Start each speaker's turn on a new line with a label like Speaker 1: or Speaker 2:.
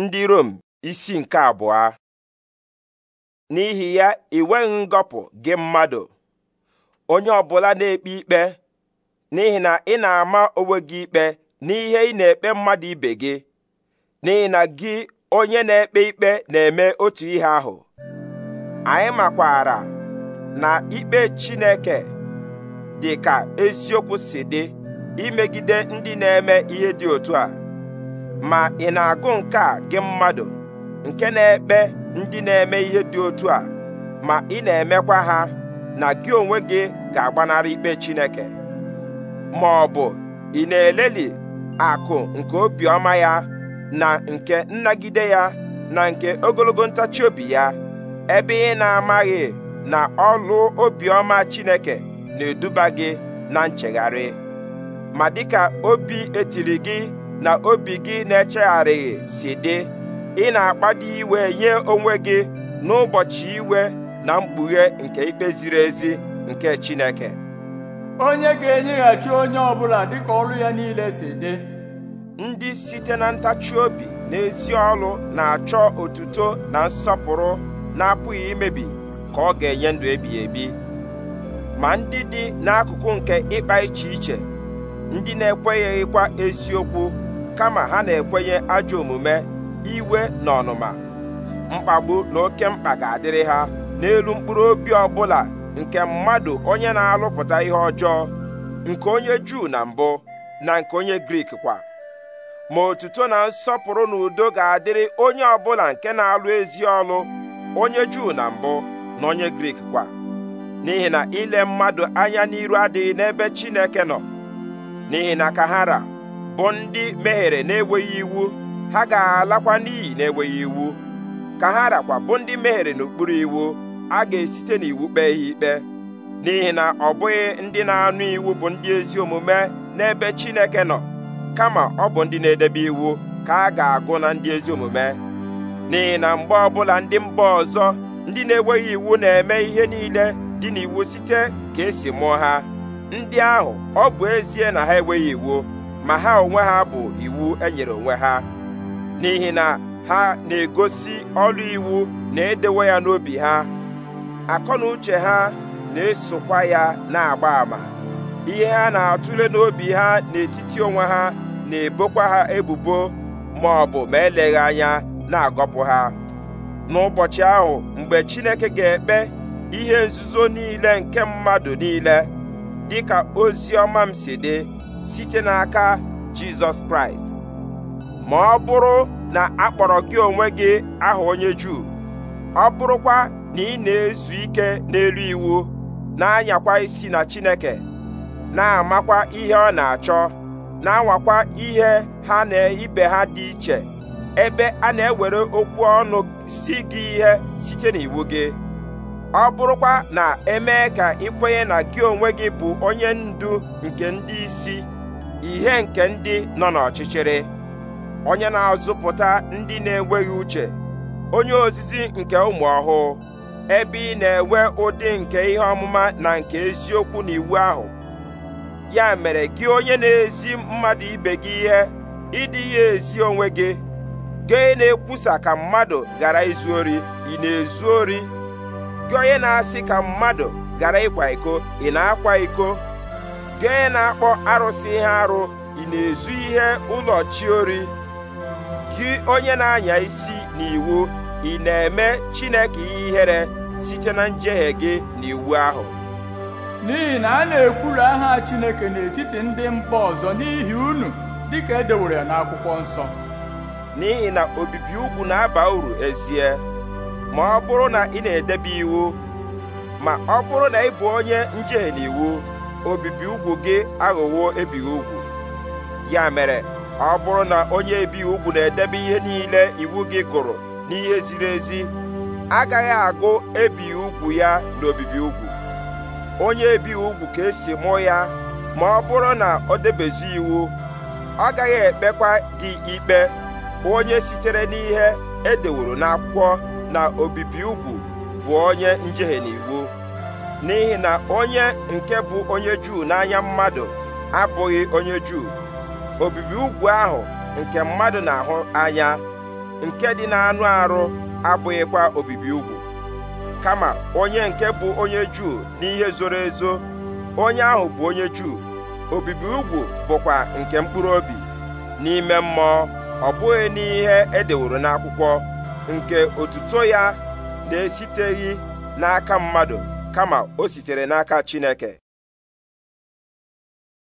Speaker 1: ndị Rom isi nke abụọ n'ihi ya ị nweghị ngọpụ gị mmadụ onye ọbụla na-ekpe ikpe n'ihi na ị na-ama onwe gị ikpe n'ihe ị na-ekpe mmadụ ibe gị n'ihi na gị onye na-ekpe ikpe na-eme otu ihe ahụ anyị makwara na ikpe Chineke dị ka eziokwu si dị imegide ndị na-eme ihe dị otu a ma ị na-agụ nke a gị mmadụ nke na-ekpe ndị na-eme ihe dị otu a ma ị na-emekwa ha na gị onwe gị ga-agbanarị ikpe Chineke ma ọ bụ ị na-eleli akụ nke obiọma ya na nke nnagide ya na nke ogologo ntachi obi ya ebe ị na-amaghị na ọlụ obiọma Chineke na-eduba gị na nchegharị ma dịka obi etiri gị na obi gị na-echegharịghị si dị ị na-akpado iwe nye onwe gị n'ụbọchị iwe na mkpughe nke ikpe ziri ezi nke Chineke onye ga-enyeghachi onye ọbụla dịka ọrụ ya niile si dị ndị site na ntachi obi na ezi ọlụ na-achọ otuto na nsọpụrụ na-apụghị imebi ka ọ ga-enye ndụ ebighị ebi ma ndị dị n'akụkụ nke ịkpa iche iche ndị na-ekwenyeghịkwa eziokwu kama ha na-ekwenye ajọ omume iwe na ọnụma mkpagbu na oke mkpa ga-adịrị ha n'elu mkpụrụ obi ọbụla nke mmadụ onye na-alụpụta ihe ọjọọ nke onye Juu na mbụ na nke onye Grik kwa ma otuto na nsọpụrụ na udo ga-adịrị onye ọbụla nke na-alụ ezi ọlụ onye Juu na mbụ na onye Grik kwa n'ihi na ile mmadụ anya n'iru adịghị n'ebe Chineke nọ n'ihi na kahara bụ ndị mehiere na-enweghị iwu ha ga-alakwa n'iyi na-enweghị iwu ka ha rakwa bụ ndị mehiere n'okpuru iwu a ga-esite n'iwu kpee ha ikpe n'ihi na ọ bụghị ndị na-anụ iwu bụ ndị ezi omume n'ebe Chineke nọ kama ọ bụ ndị na-edebe iwu ka a ga-agụ na ndị ezi omume n'ihi na mgbe ọbụla ndị mba ọzọ ndị na-enweghị iwu na-eme ihe niile dị n'iwu site ka esi mụọ ha ndị ahụ ọ bụ ezie na ha enweghị iwu ma ha onwe ha bụ iwu enyere onwe ha n'ihi na ha na-egosi ọrụ iwu na-edewe ya n'obi ha akọ na uche ha na-esokwa ya na-agba ama ihe ha na-atụle n'obi ha n'etiti onwe ha na-ebokwa ha ebubo ma ọ bụ ma eleghị anya na-agọpụ ha n'ụbọchị ahụ mgbe Chineke ga-ekpe ihe nzuzo niile nke mmadụ niile dịka ozi ọma m si dị site n'aka jizọs kraịst ma ọ bụrụ na akpọrọ gị onwe gị aha onye juu ọ bụrụkwa na ị na-ezu ike n'elu iwu na-anyakwa isi na chineke na-amakwa ihe ọ na-achọ na-anwakwa ihe ha na ibe ha dị iche ebe a na-ewere okwu ọnụ si gị ihe site n'iwu gị ọ bụrụkwa na emee ka ị na gị onwe gị bụ onye ndu nke ndị isi ihe nke ndị nọ n'ọchịchịrị onye na-azụpụta ndị na-enweghị uche onye ozizi nke ụmụ ọhụụ ebe ị na-enwe ụdị nke ihe ọmụma na nke eziokwu na iwu ahụ ya mere gị onye na-ezi mmadụ ibe gị ihe ịdị ya ezi onwe gị gị na-ekwusa ka mmadụ ghara izu ori ị na-ezu ori gị onye na-asị ka mmadụ ghara ịkwa iko ị na-akwa iko gị na-akpọ arụsị ihe arụ ị na-ezu ihe ụlọ chiori gị onye na-anya isi n'iwu ị na-eme Chineke ihere site na njehie gị n'iwu ahụ n'ihi na a na ekwuru aha Chineke n'etiti ndị mba ọzọ n'ihi unu dịka edewere ya n'akwụkwọ nsọ n'ihi na obibi ugwu na-aba uru ezie ma ọ bụrụ na ị na-edebe iwu ma ọ bụrụ na ị bụ onye njehie n'iwu obibi ugwu gị aghọwo ebighị ugwu ya mere ọ bụrụ na onye ebighị ugwu na-edebe ihe niile iwu gị gụrụ n'ihe ziri ezi agaghị agụ ebighị ugwu ya n'obibi ugwu onye ebighị ugwu ka esi mụọ ya ma ọ bụrụ na ọ debezi iwu ọ gaghị ekpekwa gị ikpe onye sitere n'ihe edeworo n'akwụkwọ na obibi ugwu bụ onye njehie n'iwu n'ihi na onye nke bụ onye Juu n'anya mmadụ abụghị onye Juu obibi ugwu ahụ nke mmadụ na-ahụ anya nke dị na-anụ arụ abụghịkwa obibi ugwu kama onye nke bụ onye Juu n'ihe zoro ezo onye ahụ bụ onye Juu obibi ugwu bụkwa nke mkpụrụ obi n'ime mmụọ ọ bụghị n'ihe edeworo n'akwụkwọ nke otuto ya na-esiteghị n'aka mmadụ kama o sitere n'aka Chineke